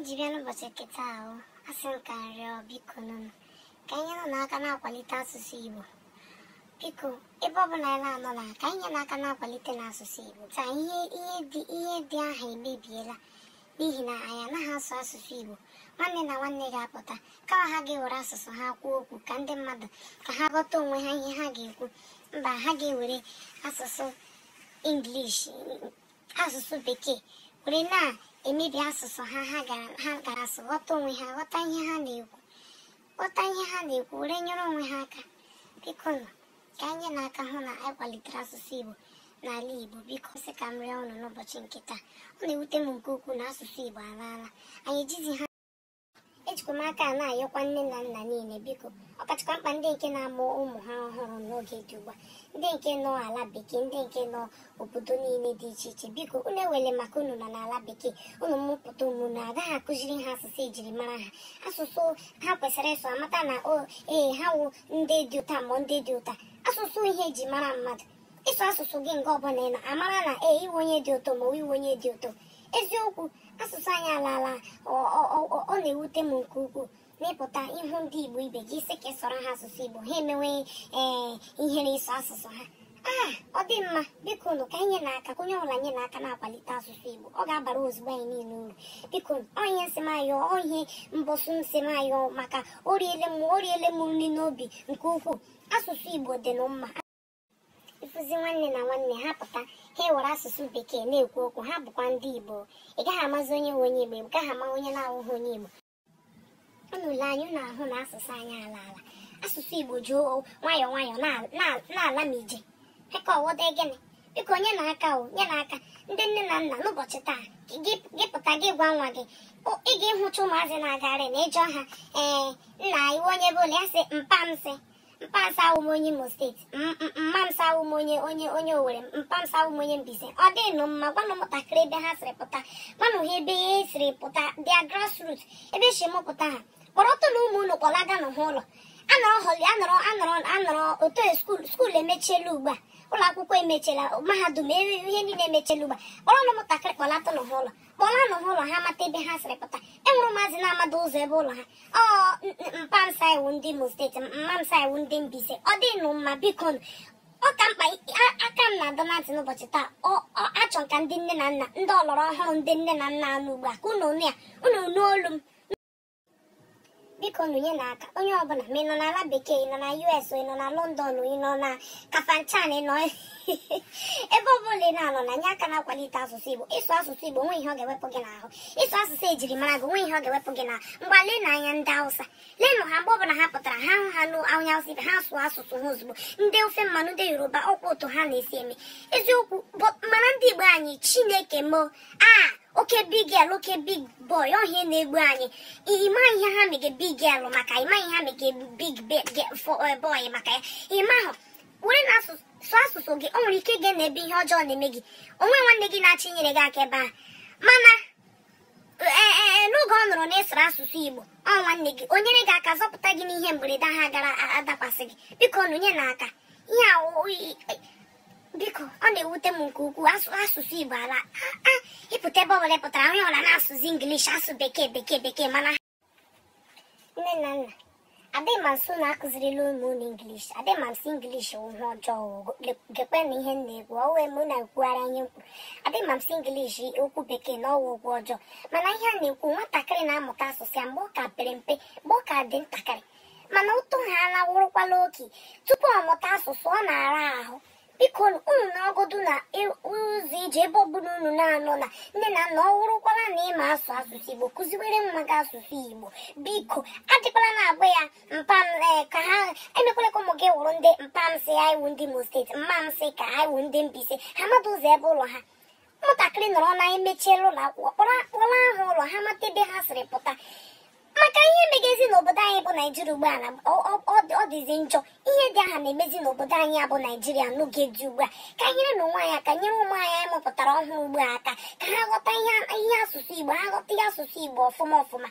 jiri anụbọchị nkịta ahụ asị nka rịọ biko nụnụ ka anyị nọ n'aka na-akwalite asụsụ Igbo biko ebe ọbụla anyị na-anọ na ka anyị nye n'aka na-akwalite n'asụsụ Igbo taa ihe ihe dị aha emebiela n'ihi na anyị anaghị asụ asụsụ Igbo nwanne na nwanne ga-apụta kama ha ga-ewere asụsụ ha kwuo okwu ka ndị mmadụ ka ha ghọta onwe ha ihe ha ga-ekwu mba ha ga-ewere asụsụ English asụsụ bekee were na emebi asụsụ ha ha gara asụ ghọta onwe ha ghọta ihe ha na-ekwu ghọta ihe ha na-ekwu were nyere onwe ha aka biko nọ ka anyị na-aka hụ na akwalitere asụsụ Igbo n'ala Igbo biko sị ka m rịọ ọnụ n'ụbọchị nke taa ọ na-ewute m nke ukwuu na asụsụ Igbo alaala anyị ejizi ha Enyemaka a na-ayọkwa nne na nna niile biko ọkachakwa mkpa ndị nke na-amụ ụmụ ha ọhụrụ n'oge dị ugbu a ndị nke nọ ala bekee ndị nke nọ obodo niile dị iche iche biko unu ewele maka unu na n'ala bekee unu mmụpụta na agaghị akụziri ha asụsụ e mara ha asụsụ ha kwesịrị ịsụ amata na o oh, ee eh, ha wụ ndị dị ụta ma ndị dị ụta asụsụ ihe eji mara mmadụ ịsụ asụsụ gị nke ọbụla ị na amara na ee iwe onye dị ụtọ ma iwe onye dị ụtọ eziokwu asụsụ anyị alaala ọ na-ewute m nke ukwuu mepụta ịhụ ndị igbo ibe gị sị ka e ha asụsụ igbo ha emewe ee eh, ihere eso asụsụ ha aa ah, ọ dị mma biko nụ ka anyị na-aka onye ọbụla nye na aka na-akwalite asụsụ igbo ọ ga-abara ozugbo anyị niile uru biko onye nsịmayọ ohe mbọsụ nsịmayọ maka oriele m oriele m nri n'obi nke ukwuu asụsụ igbo dị na mma ịfụzi nwanne na nwanne ha pụta ha were asụsụ bekee na-ekwu okwu ha bụkwa ndị igbo ị gaghị amazi onye nwe onye igbo ị gaghị ama onye na-awụghị onye igbo unu anyị anya unu ahụ na asụsụ anyị ala ala asụsụ igbo ji nwayọọ nwayọọ na-ala ma ije aka ọwọde gịnị biko onye na-aka o nye na-aka ndị nne na nna n'ụbọchị taa gị pụta gị gwa nwa gị ị ga-ehụcha ụmụazị na-agarị na ịjọ ha ee nna iwe onye bụla ya sị mpa m sị mpasawu m onye imo steeti mmamsawu m onye onye onye owere mpamsawu m onye mbize ọ dịnụ mma gwanụ ụmụntakịrị ebe ha siri pụta gwanụ ha ebe ha siri pụta dia grassroot ebe e si m pụta ha kpọrọ na ụmụ unu kpọlaga n'ụha ụlọ anọrọ holi anọrọ anọrọ anọrọ otu e, skuul emechiela ugbu a ụlọ akwụkwọ emechela mahadum eriri ihe niile emechela a kpọrọ ụmụntakịrị kpọlata n'ụlọ kpọla ụlọ ha mata ebe ha sịrị pụta enwere maazị na-amada ụzọ ebe ụlọ ha ọ mpamsa iwu ndị imo steeti mmamsa iwu ndị Mbaise ọ dịnụ mma biko ọ ka mkpa aka m na-adọ na ntị n'ụbọchị taa achọ ka ndị nne na nna ndị ọlọrọ ọhụrụ ndị nne na nna anụ ugbu a ka ụnụ nụ ya unu n'olu m biko nụnye na aka onye ọbụla ma ị nọ n'ala bekee ị nọ na us ị nọ na london ị nọ na kafanchan ị nọ ebe ọbụla ị na-anọ na nye aka na-akwalite asụsụ igbo ịsụ asụsụ igbo nwe ihe ọ ga-ewepụ gị n'ahụ ịsụ asụsụ ejiri mara gị onwe ihe ọ ga-ewepụ gị na mgba lee na anya ndị hausa leenụ ha mgbe ọbụla ha pụtara ha hụ ha n'anya hausa ibe ha sụọ asụsụ ha ozugbo ndị ofe mmanụ ndị yoruba ọkwa ụtọ ha na-esi eme eziokwu mana ndị igbo anyị chineke moo aa oke big girl oke big boy ọhịa na-egbu anyị ịma ihe ha mege big girl maka ịma ihe ha mege big eh, boy maka ya ịma ahụ were na asụsụ asụsụ gị o nwere ike gị na ebe ihe ọjọọ na-eme gị onwe nwanne gị na-achị inyere gị aka ebe a mana eh, eh, n'oge ọ nụrụ na-esoro asụsụ igbo ọ nwanne gị o nyere gị aka zọpụta gị n'ihe mberede ha gara adakwasị gị biko nụnye aka ihe biko ọ na-ewute m nke ukwuu asụsụ igbo ala ịpụta ebe ọbụla pụtara onye ọla na-asụzi ingilish asụ bekee bekee bekee mana nne na nna adịghị na-akụzirila ụmụ unu ingilish adịghị m nso ingilish ihe ọjọọ gekwe na ihe na-ekwu ọ na-ekwugharị anya mkpu adịghị nso okwu bekee na ọwa ọjọọ mana ihe a na-ekwu nwatakịrị na-amụta asụsụ ya mgbe ọ ka pere mpe mgbe ọ ka dị ntakịrị mana ụtụ ha alawụrụkwala oke tupu ọ mụta asụsụ ọ na-ara ahụ biko unu na-agụdụ na ụzọ ije ebe bụrụ unu na-anọ na nne na nna ọ wụrụkwara na ịma asụ asụsụ igbo kụziwere mma gị asụsụ igbo biko adịkwala na agba ya mpam ka ha emekwala ka ụmụ gị wụrụ ndị mpamsị ya iwu ndị imo steeti mmamsị ka ha iwu ndị mbise ha mmadụ ụzọ ebe ụlọ ha ụmụntakịrị nọrọ na emechiela ụlọ akwụkwọ kpọrọ ahụ ụlọ ha mata ebe ha siri pụta maka ihe megezi n'obodo anyị bụ naijiria ugbu a na ọ dịzi njọ ihe dị aha na-emezi n'obodo anyị bụ naijiria n'oge dị ugbu a ka nyere na onwe anya aka nyere ụmụ anyị anyị mụpụtara ọhụrụ ugbu a aka ka ha ghọta ihe asụsụ igbo ha ghọta ihe asụsụ igbo ọfụma ọfụma